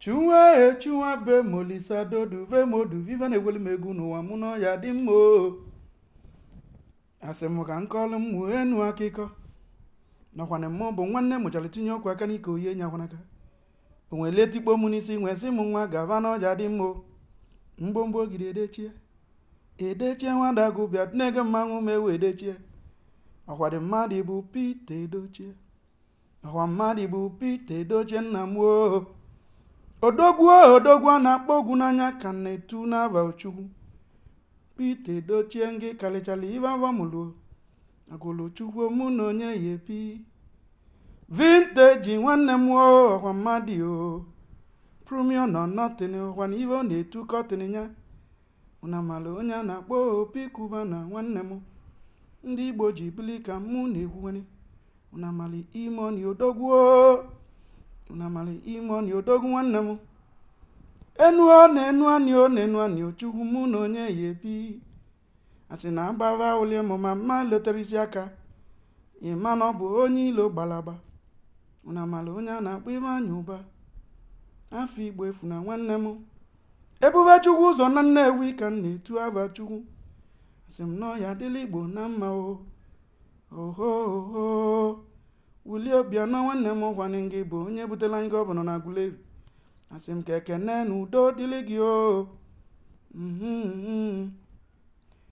chunwa e be molisa dodu ve modu vive na-egweli m n'ụwa mụ na dị mma o asị m ka nkọlụ m mụ enu akụkọ nakwana mmụọ bụ nwanne mụchara tinye ọkụ aka n'ike oyi enyi akwanaka o nwere letikpo m n'isi nwee sị m nwa gava n'ọja dị mma o mgbomgbo ogiri edechie edechie nwada gụbịa na mmanwụ ma ewe edechie ọkwa dị mmadụ bụ pete edochie ọkwa mmadụ bụ pete edochie nna m Odoguo odoguo a na-akpọ ogwu n'anya ka na-etu n'ava ochukwu pite dochie ngị karịchara ibe agụlụ agụlụchukwu mụ na onye ya epi vinteji nwanne m ọkwa mmadụ o prumio nọ nọtịn ọkwa na ọ na-etu kọtịn ya na mara onye a na-akpọ opi kuba na nwanne m ndị igbo ji bili ka mụ na-ekwuwanye na mara ime ọni odogwuo namara ime ọnị odogwu nwanne m enuo na-enu anị o na-enu anị ochukwu chukwu mụ na onye ya ebi asị na agbara ụli mụ ma mma isi aka ịma na ọ bụ onye ilo gbalaba namara onye a na-akpọ ime anya ụba afọ igbo efu na nwanne m ebube chukwu ụzọ na nnewi ka m na-etu aba chukwu asị m nọ adịla igbo na mma o wulie obia nwanne m ụgwanne gị bụ onye butela anyị gọvanọ na Aguleri asị m ka ekene na udo dịrị gị o oh. mm-hmm, mm-hmm.